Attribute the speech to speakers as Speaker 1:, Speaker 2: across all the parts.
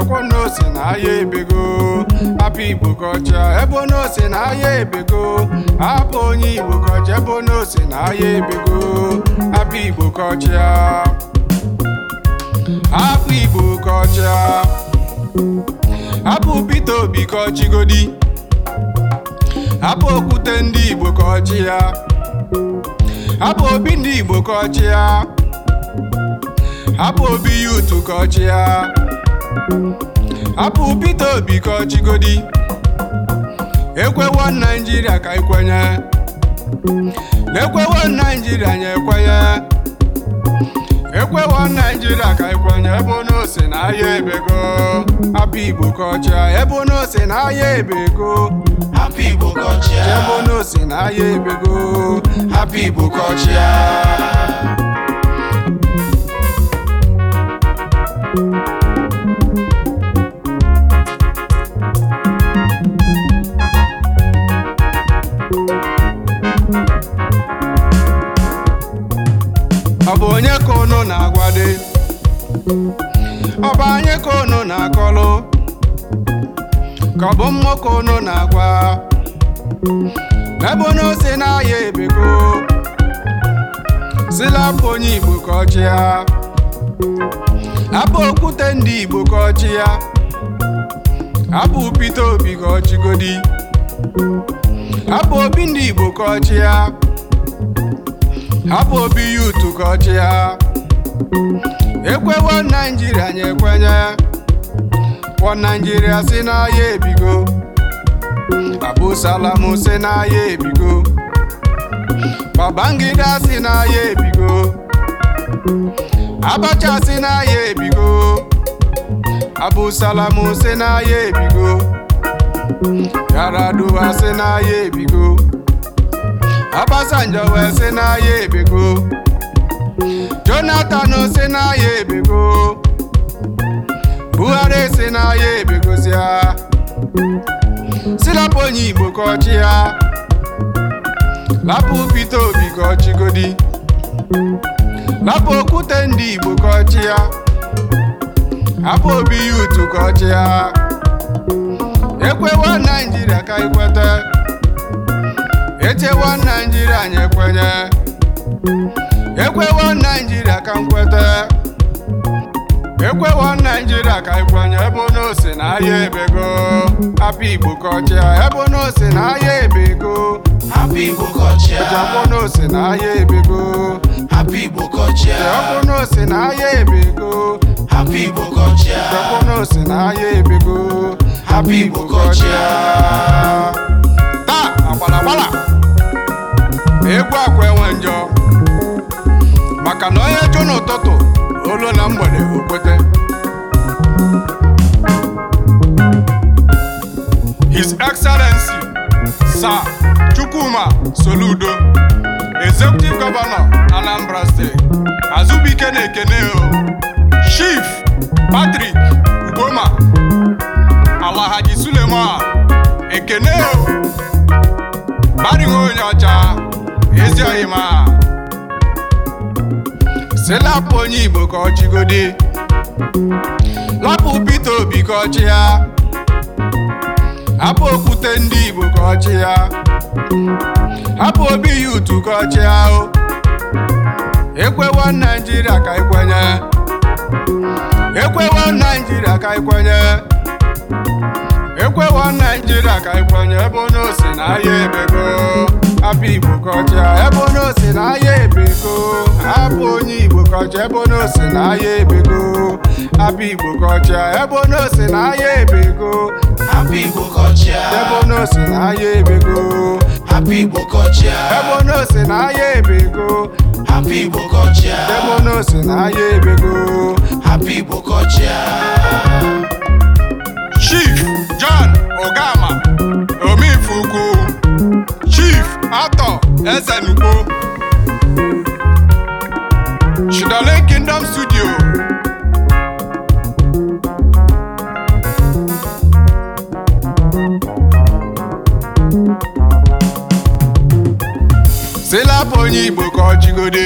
Speaker 1: akwọ n'ose na ahịa ebego apụ igbo kọcha ebe n'ose na ahịa ebego apụ onye igbo kọcha ebe n'ose na ahịa ebego apụ igbo kọcha Apụ igbo kọcha Apụ Peter Obi ka ọchịgodi hapụ okwute ndị igbo ka ọchị ya hapụ obi ndị igbo ka ọchị ya hapụ obi yutu ka ọchị ya Apụ Peter Obi ka ọ chịgodi ekwewo Naijiria ka ekwenye na-ekwewo Naijiria nye ekwenye ekwewo Naijiria ka ekwenye ebe onye ose na ahịa ebego hapụ Igbo ka ọchịa ebe onye ose na ahịa ebego hapụ Igbo ka ọchịa ebe onye ose na ahịa ebego hapụ Igbo ka ọchịa ọ bụ onye ka unu na-agwade ọ bụ anyị ka unu na-akọlụ ka ọ bụ mmụọ ka unu na-agwa ebe unu si n'ahịa ebeko silapụ onye Igbo ka ọ chịa apụ okwute ndị Igbo ka ọ chịa apụ Peter Obi ka ọ chịgodi apụ obi ndị Igbo ka ọ chịa abụ obi ya utu ka ọchị ya ekwewo naijiria anyị ekwenye kwọ naijiria si n'ahịa ebigo abụsalam si n'ahịa ebigo babangida si n'ahịa ebigo abacha si n'ahịa ebigo abụsalam si n'ahịa ebigo yaraduwa si n'ahịa ebigo Obasanjo wee sị na ya ebego Jonathan sị na ya ebego Buhari sị na ya ebegozia silapụ onye Igbo ka ọchị ya lapụ Peter Obi ka ọchịgodi lapụ okwute ndị Igbo ka ọchị ya hapụ obi ya utu ka ọchị ya ekwewa Naijiria ka ekweta. Naijiria anyị ekwewo Naijiria ka nkwete ekwewo Naijiria ka ikwenye ebe n'ose na ahịa ebego hapụ Igbo kọchịa ebe n'ose na ahịa ebego hapụ Igbo kọchịa ebe na ahịa ebego hapụ Igbo kọchịa ebe na ahịa ebego hapụ Igbo kọchịa ebe na ahịa ebego hapụ Igbo kọchịa egwu akwa enwe njọ maka na onye jụ n'ụtụtụ olu na mgbede okpete His Excellency Sir Chukwuma Soludo Executive Governor Anambra State Azubike na-ekene Chief Patrick Ugoma Alahaji Suleiman, ekene Bari onye ọcha ojọghị ma onye Igbo ka ọ chịgodi lapụ Peter Obi ka ọ ya hapụ okwute ndị Igbo ka ọ ya hapụ obi ya utu ka ọ chị ya Ekwewa Naijiria ka ikwenye Ekwewa Naijiria ka ikwenye Ekwewa Naijiria ka ikwenye ebe onye o si na ahịa ebego hapụ igbo kọcha ebe onye osi na ahịa ebego hapụ onye igbo kọcha ebe onye osi na ahịa ebego hapụ igbo kọcha ebe onye osi na ahịa ebego hapụ igbo kọcha ebe onye osi na ahịa ebego hapụ igbo kọcha ebe onye osi na ahịa ebego hapụ igbo kọcha ebe onye osi na ahịa ebego onye Igbo ka ọ chịgode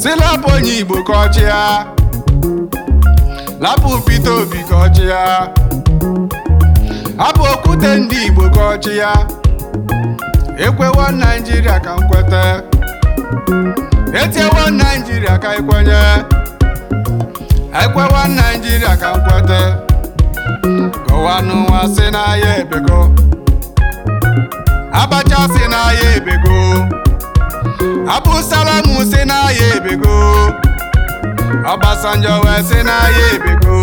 Speaker 1: si onye Igbo ka ọ chịa lapụ Peter Obi ka ọ chịa hapụ okwute ndị Igbo ka ọ chịa ekwewa Naijiria ka nkweta etiewo Naijiria ka ikwenye ekwewa Naijiria ka nkweta gọwanụ nwa si n'ahịa ebekọ abacha si na ya ebego abụsalam si na ya ebego Obasanjo wee si na ya ebego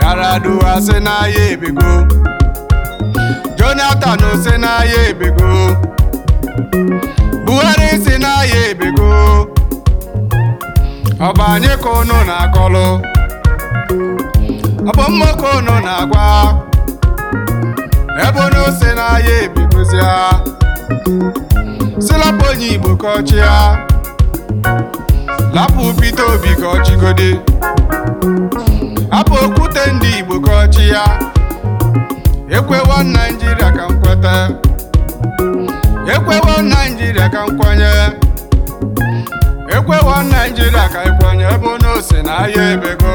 Speaker 1: Yar'Adua si na ya ebego Jonathan si na ya ebego Buhari si na ya ebego ọba anyị ka unu na-akọlụ ọ bụ unu na-agwa Ebe onye ose n'ahịa ebigozi ya silapụ onye igbo ka ọchị ya lapụ Peter Obi ka ọchịgodi hapụ okwute ndị igbo ka ọchị ya ekwewa naijiria ka m ekwewa naijiria ka nkwanye. ekwewa naijiria ka nkwanye ebe onye ose n'ahịa ebego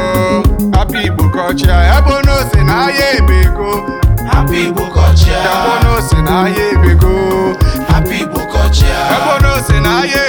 Speaker 1: hapụ igbo ka ọchị ya ebe onye ose na-aya n'ahịa ebego Happy Igbo kọchịa. Ebe ọ ahịa ebego. Happy Igbo kọchịa. Ebe